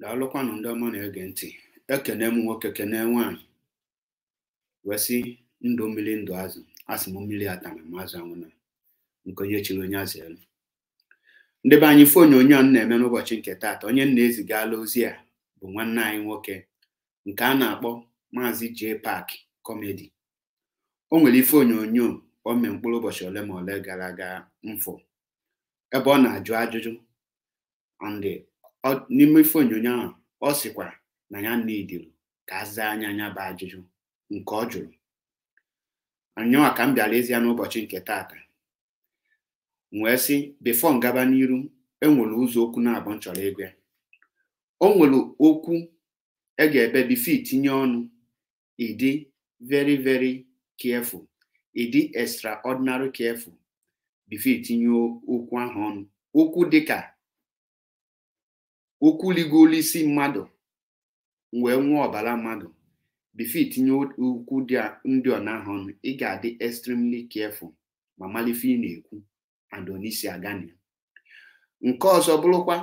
daalụkwanụ ndị ọma na-ege ntị ekene m nwoke kene nwaanyị wesị ndụ mmiri ndụ azụ asị m mmiri atara m azụ anwụna nke onye chiri onye azụ elu ndị be anyị ifeonyonyo a na-eme n'ụbọchị nke taata onye na-ezigala ozi a bụ nwanne anyị nwoke nke a na-akpọ maazị J Park kọmedi o nwere ife onyonyo o mee mkpụrụ ụbọchị ole ma ole gara aga mfụ ebe ọ na-ajụ ajụjụ n'ime ife onyonyo ahụ ọ sịkwa na ya nidiri ka a zaa anya anya bụ ajụjụ nke ọ jụrụ anyanwa ka m bịara ezi ya n'ụbọchị nke taata wee sị bifo ngaba n'iru enwere ụzọ okwu na-abụ nchọrọ ego ya o nwere okwu e ga-ebe bifo itinye ọnụ ịdị very very careful ịdị extraordinary careful bifo itinye okwu ahụ ọnụ okwu dịka okwu ligolu isi mmadụ wee nwee ọbara mmadụ bifo itinye ukwu ndị ọ ọnụ ị ga-adị extremely careful ma malife ị na-ekwu adonisi agani nke ọzọ bụrụkwa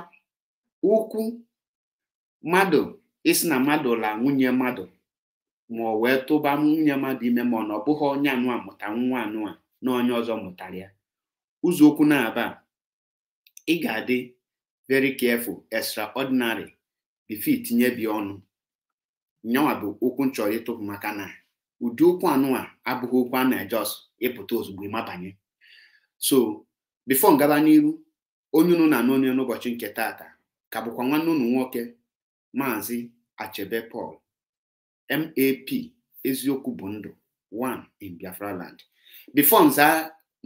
ukwu mmadụ isi na mmadụ la nwunye mmadụ ma ọ wee tụba nwunye mmadụ ime ma ọ na ọ bụghị onye anụa mụta nwa anụa na onye ọzọ mụtara ya ụzọ okwu na-aba ị ga-adị very careful extraordinary bifo itinye bi ọnụ nyawa bụ okwu nchọrọ ịtụpụ maka na ụdị okwu anụ a abụghị okwu a na-ejọs ịpụta ozugbo ịmabanye so bifo ngaba n'iru onye unu na-anụ n'ụbọchị nke taata ka bụkwa nwanne unu nwoke maazị achebe Paul map eziokwu bụ ndụ 1 in Biafra land bifo nza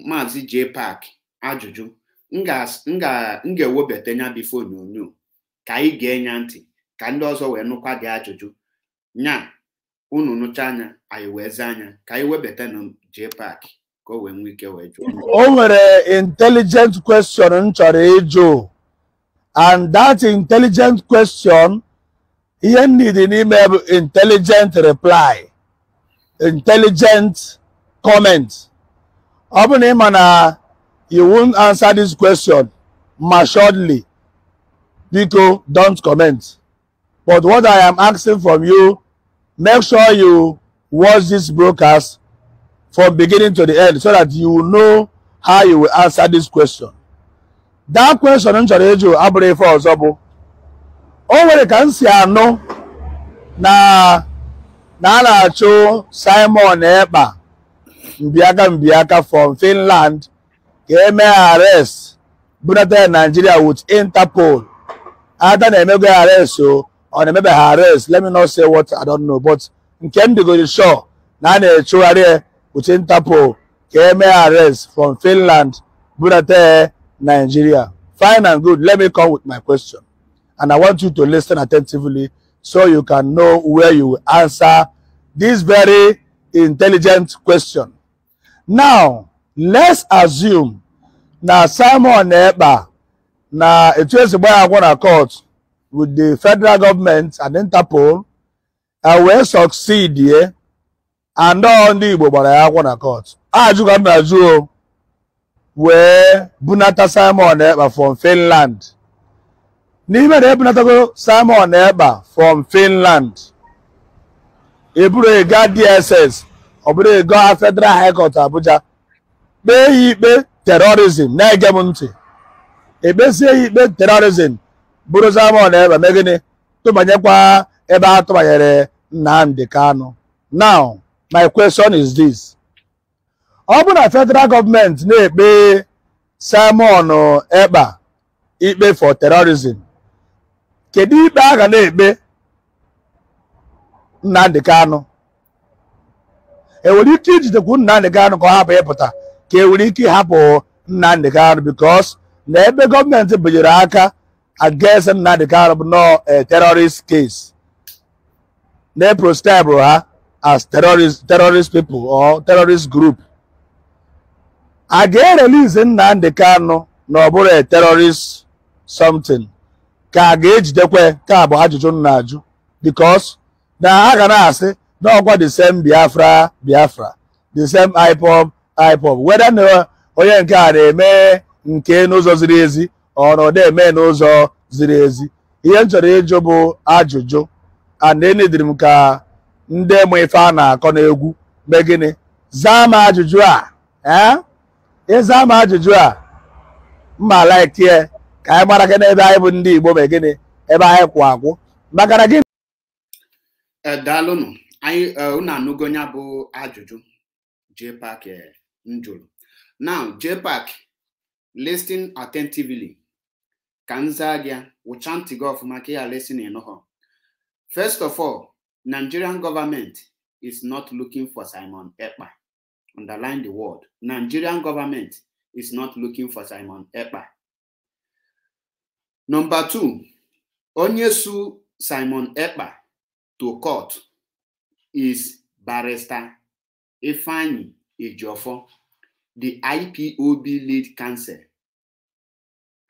maazị J Park ajụjụ m ga-ewebata anya bifo onyonyo ka anyị gee nya ntị ka ndị ọzọ wee nụkwa gị ajụjụ nya unu nụcha anya anyị wee zaa anya ka anyị webata na park ka o wee nwee ike wee jụọ o nwere intelligent question m chọrọ ịjụ and that intelligent question ihe m nidi n'ime bụ intelligent reply intelligent comment ọ bụ na ị ma na you won't answer this question assuredly. biko don't comment but what i am asking from you make sure you watch this broadcast from beginning to the end so that you know how you will answer this question that question m chọrọ ịjụ abụrụ ife ọzọ bụ o nwere ka m si anụ na na a na-achụ simon ekpa mbiaka mbiaka from finland ka-eme arrest bunata Nigeria with Interpol ada na-emego arrest o ọ na-emebe ha arrest let me not say what I don't know but nke m dịgoro sure na a na-echegharị with Interpol ka-eme arrest from Finland bunata Nigeria fine and good let me come with my question and I want you to listen attentively so you can know where you will answer this very intelligent question now let's assume na simon na ekpa na etu esi gbaa agwọ na court with the federal government and interpol I will succeed here and all ndị igbo gbara ya agwọ na court ajụka m na juo wee bunata simon na ekpa from finland n'ime na ebunatago simon na ekpa from finland eburu ego dss ọ bụrụ ego federal high court abuja kpee ya ikpe terorizm na-ege m ntị ekpezie ya ikpe terọrizm bụrụzi ama na ebe megịnị tụbanyekwa ebe a tụbanyere nnamdị kanụ now my question is this ọ bụ na federal gọọmenti na-ekpe Simon Ekpa ikpe for terrorism kedu ikpe a ga na-ekpe Nnamdi Kanu enwere ike ijidekwu ka ọ hapụ ịpụta ka hapo were ike because na ebe gọọmenti binyere aka against Nnamdị Kanụ no nọọ eh, terrorist case na proscribe ha ah, as terrorist terrorist people or terrorist group Again, ga-erelize Nnamdị Kanụ na ọ bụrụ a terrorist something ka a ga-ejidekwe ka bụ ajụjụ m because na ha ga na-asị na ọkwa the same Biafra Biafra the same IPOB IPOB weda na onye nke a na-eme nke n'ụzọ ziri ezi ọ na eme n'ụzọ ziri ezi ihe m chọrọ ịjụ bụ ajụjụ anenediri m ka ndị mụ ife a na-akọ n'egwu mee gịnị zaa m ajụjụ a ee eh? ịza m ajụjụ a mma laikie ka anyị gbara gị n'ebe anyị bụ ndị Igbo mee gịnị ebe anyị kwụ akwụ maka na gị eh, daalụnụ anyị eh, unu anụgo ya bụ ajụjụ JPAC m now JPAC listen attentively ka m zaa gị wụcha ntị gị first of all Nigerian government is not looking for Simon Epa. underline the word Nigerian government is not looking for Simon Epa. number two onyessu Simon Epa to court is barrister Efani. Ejiofor, the IPOB lead counsel,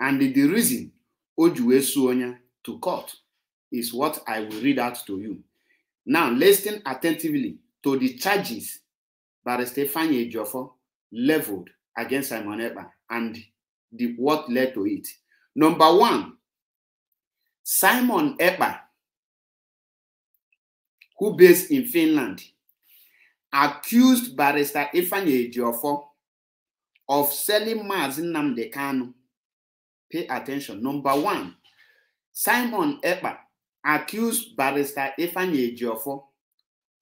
and the reason Ojuwe Suonya to court is what I will read out to you. Now, listen attentively to the charges Barrister Fanye Ejiofor leveled against Simon Ekpa and the what led to it. Number one, Simon Ekpa, who based in Finland, accused barrister Ifeanyi Ejiofor of selling Mazi Nnamdi Kanu. Pay attention. Number one, Simon Eba accused barrister Ifeanyi Ejiofor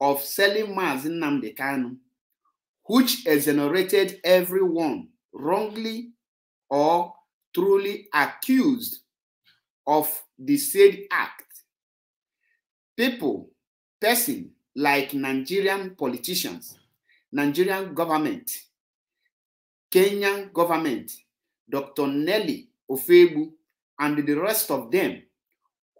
of selling Mazi Nnamdi Kanu, which exonerated everyone wrongly or truly accused of the said act. People, person, like Nigerian politicians, Nigerian government, Kenyan government, Dr. Nelly Ofebu, and the rest of them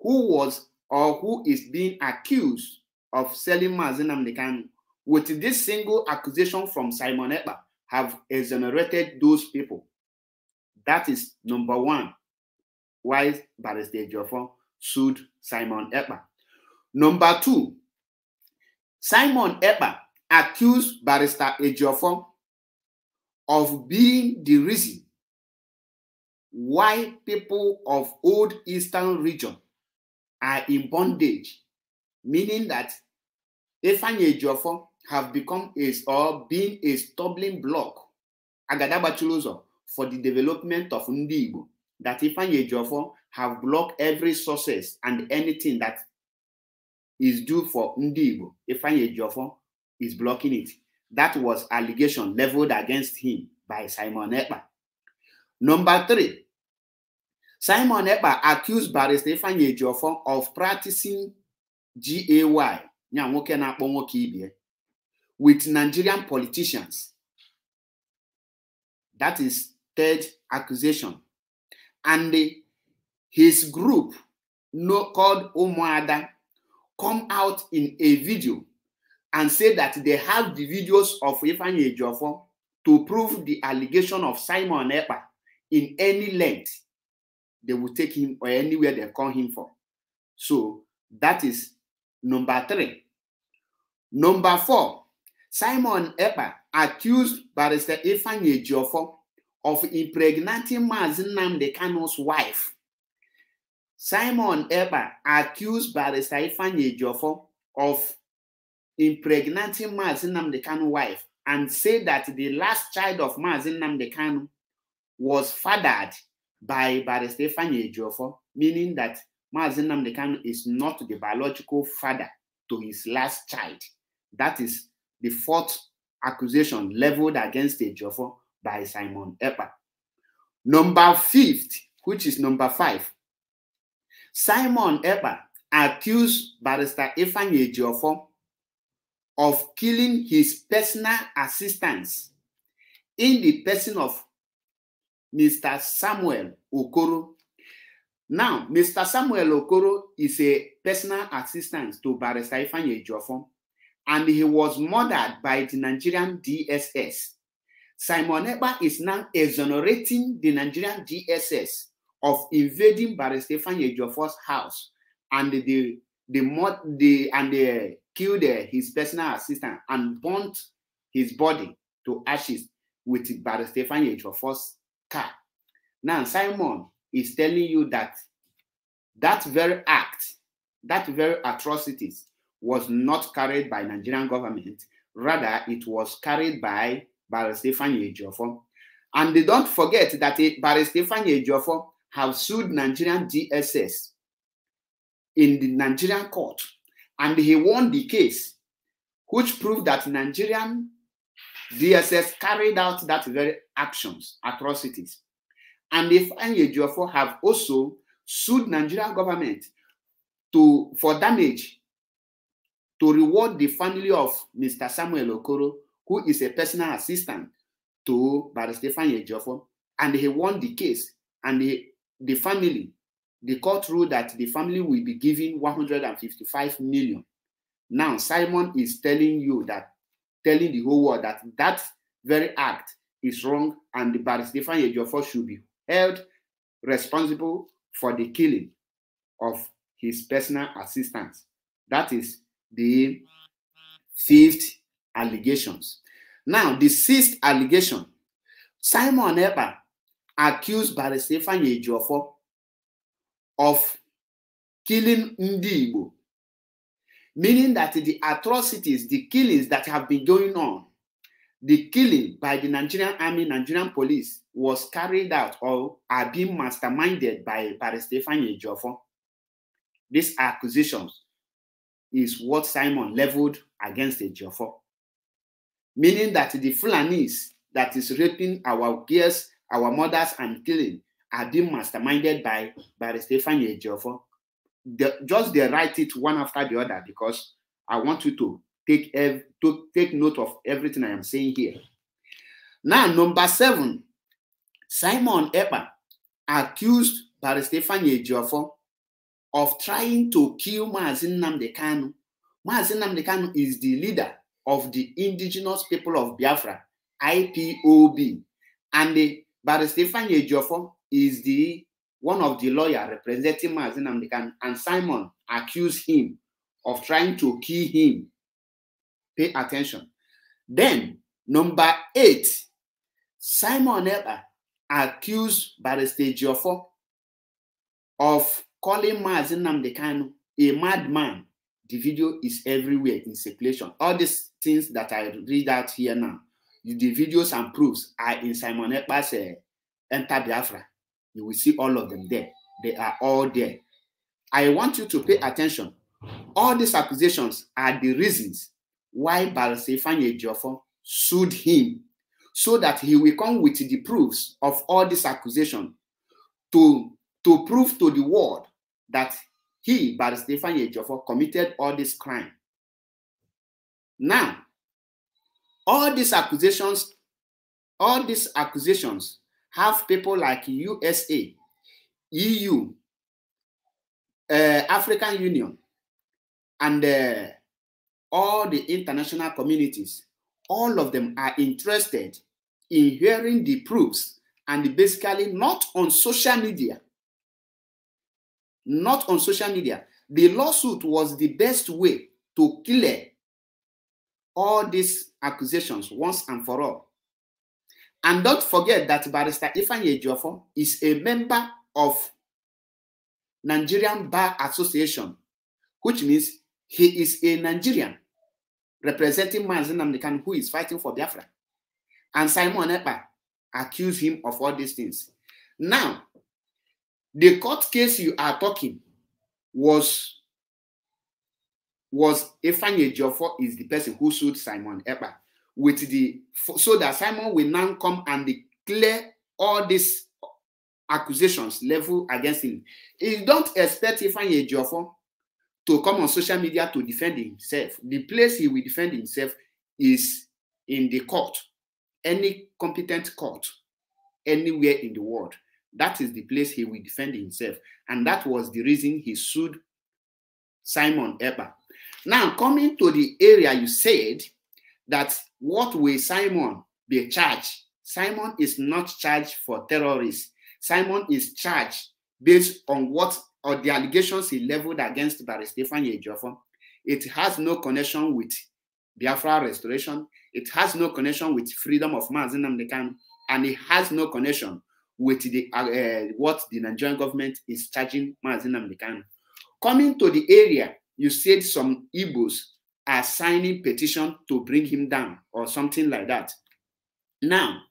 who was or who is being accused of selling Mazinam Nikanu with this single accusation from Simon Epa have exonerated those people. That is number one why Barrister Jofon sued Simon Epa. Number two, Simon Ekpa accused Barrister Ejiofor of being the reason why people of old eastern region are in bondage, meaning that Ifeanyi Ejiofor have become a or been a stumbling block Agadabachulozo for the development of Ndi Igbo. That Ifeanyi Ejiofor have blocked every success and anything that is due for Ndibo. Ifanye Jofon is blocking it. That was allegation leveled against him by Simon Eba. Number three, Simon Eba accused barrister Ifanye Jofon of practicing GAY, with Nigerian politicians. That is third accusation. And the, his group no, called Umuada come out in a video and say that they have the videos of Ifeanyi Ejiofor to prove the allegation of Simon Ekpa in any length, they will take him or anywhere they call him for. So that is number three. Number four, Simon Ekpa accused Barrister Ifeanyi Ejiofor of impregnating Mazinam Dekano's wife Simon Eba accused Barrister Ifanye Jofo of impregnating Mazin Namdekanu wife and said that the last child of Mazin Namdekanu was fathered by Barrister Ifanye Jofo, meaning that Mazin Namdekanu is not the biological father to his last child. That is the fourth accusation leveled against Ejofo by Simon Epa. Number fifth, which is number five, Simon Ekpa accused barrister Ifeanyi Ejiofor of killing his personal assistants in the person of Mr. Samuel Okoro. Now, Mr. Samuel Okoro is a personal assistant to Barrister Ifeanyi Ejiofor, and he was murdered by the Nigerian DSS. Simon Ekpa is now exonerating the Nigerian DSS of invading Baristefan Yejofor's house and the the, the, and they killed uh, his personal assistant and burnt his body to ashes with Baristefan Yejofor's car. Now Simon is telling you that that very act, that very atrocities was not carried by Nigerian government. Rather, it was carried by Baristefan Yejofor. And they don't forget that Baristefan Yejofor have sued Nigerian DSS in the Nigerian court, and he won the case, which proved that Nigerian DSS carried out that very actions, atrocities. And if Anyejuafo have also sued Nigerian government to for damage to reward the family of Mr. Samuel Okoro, who is a personal assistant to Baron Stefan Ejofo, and he won the case, and he the family, the court ruled that the family will be given 155 million. Now, Simon is telling you that, telling the whole world that that very act is wrong and the Stefan Ejiofor should be held responsible for the killing of his personal assistants. That is the fifth allegations. Now, the sixth allegation, Simon Eber accused Barrister Ifeanyi Ejiofor of killing Ndi Igbo, meaning that the atrocities, the killings that have been going on, the killing by the Nigerian army, Nigerian police was carried out or are being masterminded by Barrister Ifeanyi Ejiofor. These accusations is what Simon leveled against Ejiofor, meaning that the Fulanis that is raping our girls our mothers and killing are being masterminded by by Stefan Ejiofor. The, just they write it one after the other because I want you to take ev- to take note of everything I am saying here. Now, number seven, Simon Epa accused by Baristefan Ejiofor of trying to kill Mazin Namdekanu. Mazin Namdekanu is the leader of the indigenous people of Biafra, IPOB, and the but Stephen Ejofo is the one of the lawyer representing Mazin Amdekan, and Simon accused him of trying to kill him. Pay attention. Then, number eight, Simon Eber accused Barista Jofo of calling Mazin Namdekan a madman. The video is everywhere in circulation. All these things that I read out here now the videos and proofs are in Simon Ekpa's uh, Enter Biafra. You will see all of them mm. there. They are all there. I want you to pay mm. attention. All these accusations are the reasons why Balasefanye Jofo sued him so that he will come with the proofs of all these accusations to, to prove to the world that he, Baristefan Ejofo, committed all this crime. Now, all these accusations, all these accusations have people like USA, EU, uh, African Union, and uh, all the international communities, all of them are interested in hearing the proofs and basically not on social media. Not on social media. The lawsuit was the best way to clear all these accusations once and for all. And don't forget that Barrister Ifan Ejiofor is a member of Nigerian Bar Association, which means he is a Nigerian representing Mazin Namdekan, who is fighting for Biafra. And Simon Epa accused him of all these things. Now, the court case you are talking was was Ifanye Joffo is the person who sued Simon Epa with the so that Simon will now come and declare all these accusations level against him. You don't expect Ifanye Joffo to come on social media to defend himself. The place he will defend himself is in the court, any competent court, anywhere in the world. That is the place he will defend himself. And that was the reason he sued Simon Eber now, coming to the area you said that what will Simon be charged? Simon is not charged for terrorists. Simon is charged based on what or the allegations he leveled against Stefan Yejofor. It has no connection with Biafra restoration. It has no connection with freedom of Mazinamdekan, and it has no connection with the uh, uh what the Nigerian government is charging Mazinamdekan. Coming to the area you said some Igbos are signing petition to bring him down or something like that. Now,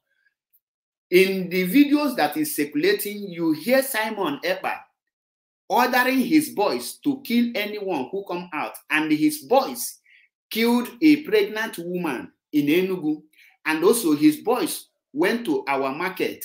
in the videos that is circulating, you hear Simon Epa ordering his boys to kill anyone who come out, and his boys killed a pregnant woman in Enugu, and also his boys went to our market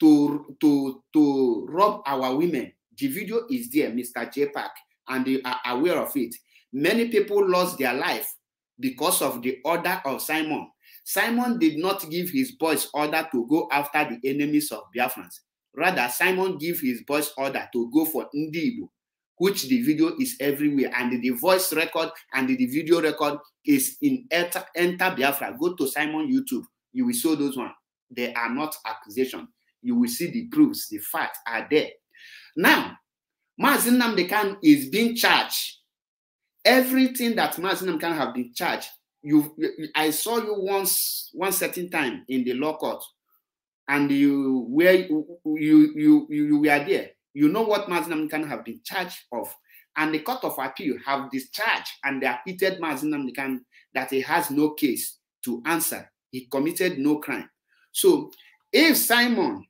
to to to rob our women. The video is there, Mr. J Park and they are aware of it. Many people lost their life because of the order of Simon. Simon did not give his boys order to go after the enemies of Biafrans. Rather, Simon gave his boys order to go for Ndibu, which the video is everywhere, and the voice record and the video record is in Enter, Enter Biafra. Go to Simon YouTube. You will see those ones. They are not accusation. You will see the proofs. The facts are there. Now, Mazin Namdekan is being charged. Everything that Mazin Namdekan have been charged. You, I saw you once, one certain time in the law court, and you where you you you, you were there. You know what Mazin Namdekan have been charged of, and the court of appeal have discharged and they acquitted Mazin Namdekan that he has no case to answer. He committed no crime. So, if Simon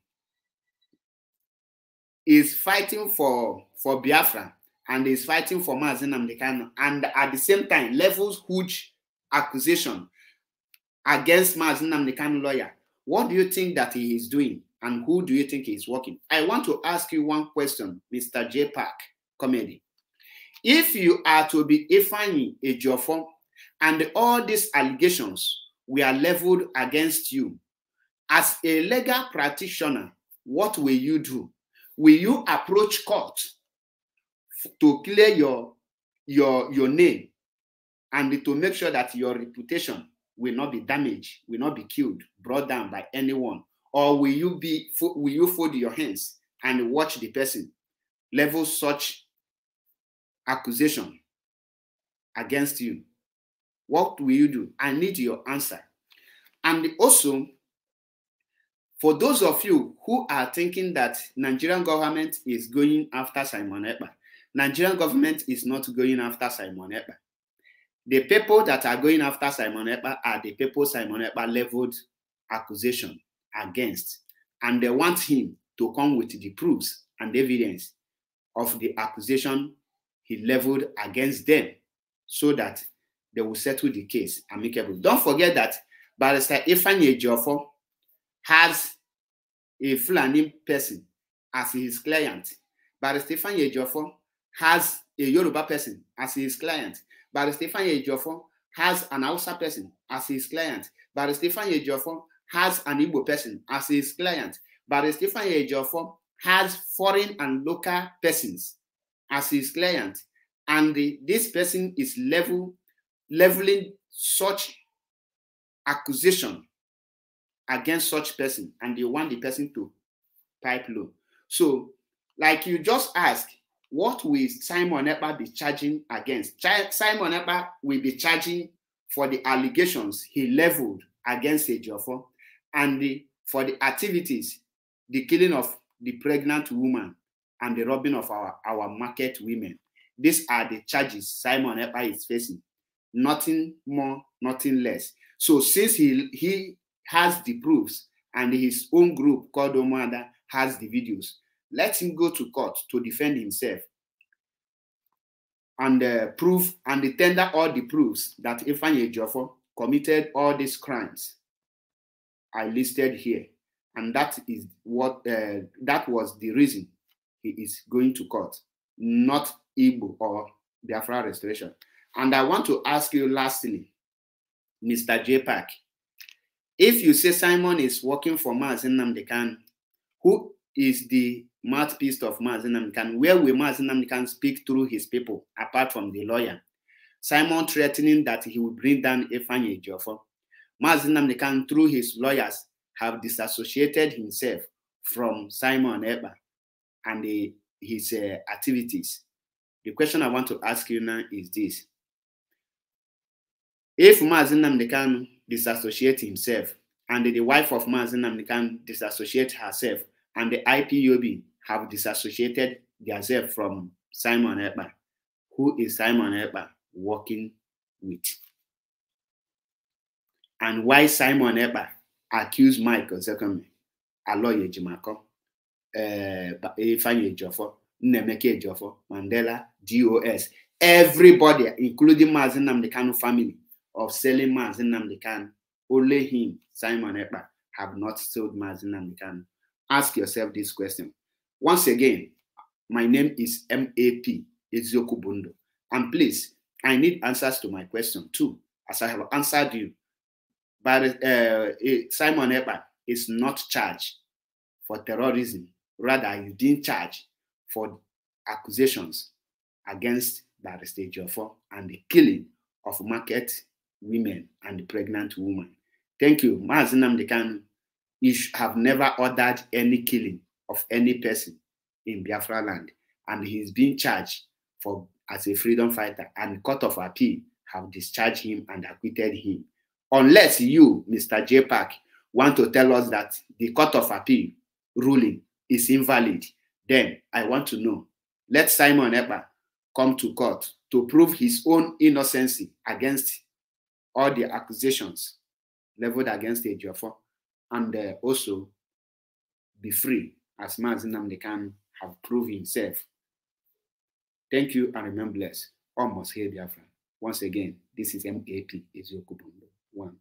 is fighting for, for Biafra and is fighting for Mazin Amdekano, and at the same time levels huge accusation against Mazin Amdekano lawyer. What do you think that he is doing? And who do you think he is working? I want to ask you one question, Mr. J. Park, comedy. If you are to be Ifani Ejiofor, and all these allegations were leveled against you, as a legal practitioner, what will you do? will you approach court to clear your your your name and to make sure that your reputation will not be damaged, will not be killed, brought down by anyone? Or will you be will you fold your hands and watch the person level such accusation against you? What will you do? I need your answer. And also, For those of you who are thinking that Nigerian government is going after Simon Ekpa, Nigerian government is not going after Simon Ekpa. The people that are going after Simon Ekpa are the people Simon Ekpa leveled accusation against, and they want him to come with the proofs and evidence of the accusation he leveled against them so that they will settle the case amicably. Don't forget that Barrister Ifanye Jofo has a Fulani person as his client. but Stefan Ejiofor has a Yoruba person as his client. but Stefan Ejiofor has an Hausa person as his client. but Stefan Ejiofor has an Igbo person as his client. but Stefan Ejiofor has foreign and local persons as his client. And the, this person is level leveling such accusation against such person and they want the person to pipe low. So, like you just ask, what will Simon Epa be charging against? Ch Simon Epa will be charging for the allegations he leveled against Ejiofor and the, for the activities, the killing of the pregnant woman and the robbing of our, our market women. These are the charges Simon Epa is facing. Nothing more, nothing less. So since he he has the proofs and his own group called Omada has the videos. Let him go to court to defend himself and uh, prove and tender all the proofs that Ifanye Jofo committed all these crimes I listed here. And that is what uh, that was the reason he is going to court, not Igbo or Biafra restoration. And I want to ask you lastly, Mr. J. Park, if you say Simon is working for Mazin Namdekan, who is the mouthpiece of Mazin Namdekan? Where will Mazin Namdekan speak through his people apart from the lawyer? Simon threatening that he will bring down Ifanye Jofo. Mazin Namdekan, through his lawyers, have disassociated himself from Simon Eba and the, his uh, activities. The question I want to ask you now is this if Mazi Namdekan disassociate himself and the wife of Mazi Namdekan disassociate herself and the IPUB have disassociated themselves from Simon Ekpa, who is Simon Ekpa working with? And why Simon Ekpa accused Michael Zekome, Aloy Ejimako, uh, eh, Ifeanyi Ejiofor, Nnemeka Ejiofor, Mandela, DOS, everybody, including Mazi Namdekan family, of selling Mazin Namdekan, only him, Simon Epa, have not sold Mazin Namdekan. Ask yourself this question. Once again, my name is MAP, Ezioku Bundo. And please, I need answers to my question too, as I have answered you. But uh, eh, Simon Epa is not charged for terrorism. Rather, didn't charge for accusations against Barrister Jofo and the killing of Market women and pregnant women. Thank you. Mazinam Dekan have never ordered any killing of any person in Biafra land, and he's being charged for as a freedom fighter, and court of appeal have discharged him and acquitted him. Unless you, Mr. J. Park, want to tell us that the court of appeal ruling is invalid, then I want to know. Let Simon Eber come to court to prove his own innocence against all the accusations leveled against Ejiofor and uh, also be free as Mazinamde can have proved himself. Thank you and remember blessed. Almost here, friend Once again, this is MAP Eziokubundo 1.